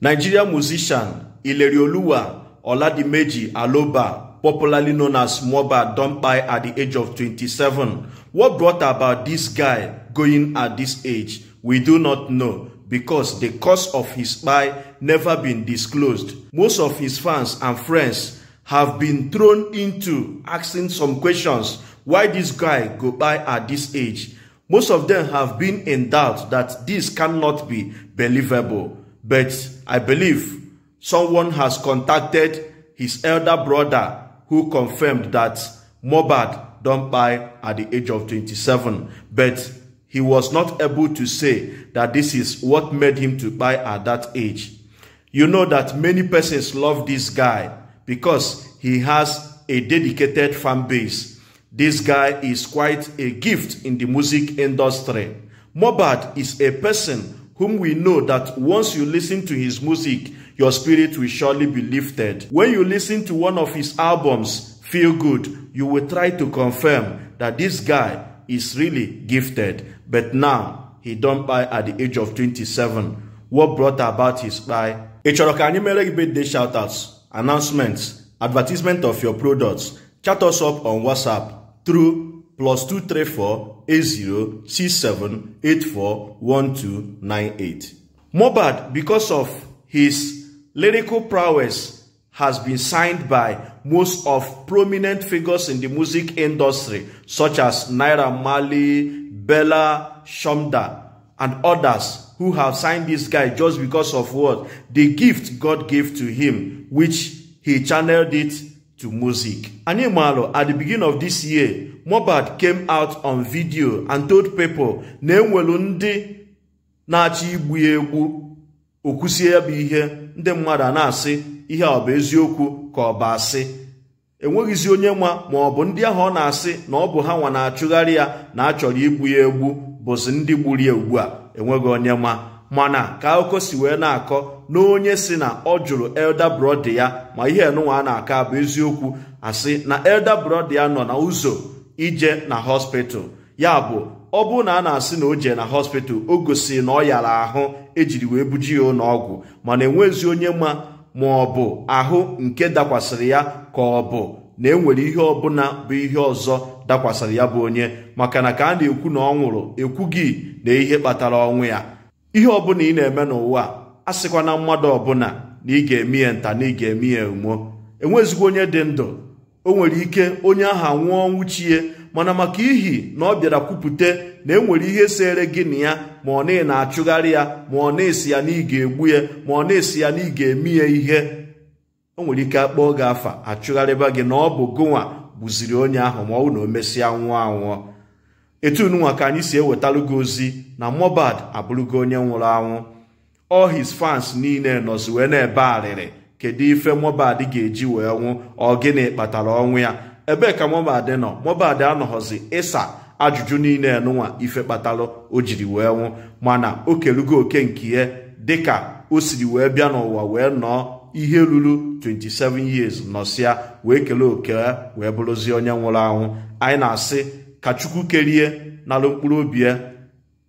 Nigerian musician Ilerioluwa Oladimeji Aloba, popularly known as Moba, don't buy at the age of 27. What brought about this guy going at this age? We do not know because the cause of his buy never been disclosed. Most of his fans and friends have been thrown into asking some questions why this guy go buy at this age. Most of them have been in doubt that this cannot be believable but I believe someone has contacted his elder brother who confirmed that Mohbad don't buy at the age of 27 but he was not able to say that this is what made him to buy at that age. You know that many persons love this guy because he has a dedicated fan base. This guy is quite a gift in the music industry. Mohbad is a person whom we know that once you listen to his music, your spirit will surely be lifted. When you listen to one of his albums, Feel Good, you will try to confirm that this guy is really gifted. But now, he don't buy at the age of 27. What brought about his buy? Ịchọrọ ka anyị mere gị birthday shoutouts, announcements, advertisement of your products. Chat us up on WhatsApp through plus 1298 Mobad, because of his lyrical prowess, has been signed by most of prominent figures in the music industry, such as Naira Mali, Bella Shumda, and others who have signed this guy just because of what? The gift God gave to him, which he channeled it to music. Animalo, at the beginning of this year, Mobad came out on video and told people na enwelu ndị na-achọ igbu egwu egbu okwusie ya bụ ihe ndị mmadụ a na-asị ihe ọ bụ eziokwu ka ọ bụ asị enweghịzi onye nwa ma ọ bụ ndị ahụ ọ na-asị na ọ bụ ha nwa na-achụgharị ya na achọrọ igbu ya egbu bụzi ndị gburu ya ugbu enweghị onye nwa mana ka akụkọ si wee na-akọ na onye si na ọ jụrụ elda brọda ya ma ihe enụnwa a na-akọ abụ eziokwu asị na elda ya nọ na ụzọ ije na hospital ya bụ ọ bụrụ na a na-asị na o jee na hospital o gosi na ọ yara ahụ ejiri wee buji ya ụlọọgwụ mana enwezi onye ma ma ọ bụ ahụ nke dakwasịrị ya ka ọ bụ na enwere ihe ọbụla bụ ihe ọzọ dakwasịrị ya bụ onye maka na ka a na-ekwu na ọ nwụrụ ekwughị na ihe kpatara ọnwụ ya ihe ọbụla ị na-eme n'ụwa a sịkwa na mmadụ ọbụla na ị ga-eme ya nta na ị ga-eme ya emuo onye dị ndụ o nwere ike onye ahụ nwụọ nwuchie mana maka ihi na ọ bịara kwupụta na enwere ihe sere gị na ya ma ọ na na-achụgharị ya ma ọ na-esi ya na ị ga-egbu ya ma ọ na-esi ya na ị ga-eme ya ihe o nwere ike akpọọ gị afa achụgharịba gị na ọ bụ gụnwa gbuziri onye ahụ ma ọ bụ na o mesịa nwụọ anwụọ etu nunwa ka anyị si ewetalugo ozi na Mohbad abụrụgo onye nwụrụ anwụ all his fans niile nọzi wee na-ebe arịrị kedu ife Mohbad ga-eji wee nwụ ọ gịnị kpatara ọnwụ ya ebee ka Mohbad nọ Mohbad anọghọzi ịsa ajụjụ niile nụnwa ife kpatara o jiri wee nwụ mana o kelugo oke nke ihe dịka o siri wee bịa n'ụwa wee nọọ ihe ruru 27 years nọsịa wee kelee oke wee bụrụzie onye nwụrụ anwụ anyị na-asị ka chukwu kerie n'ala mkpụrụ obi ya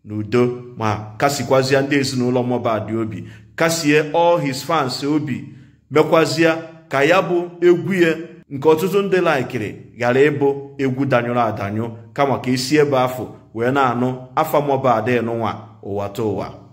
n'udo ma kasikwazie ndị ezinụlọ Mohbad obi kasie all his fans obi mekwazia ka ya bụ egwu ya nke ọtụtụ ndị laikiri ghara ịbụ egwu danyụrụ adanyụ kama ka esi ebe afọ wee na-anụ afa Mohbad nụnwa ụwa ta ụwa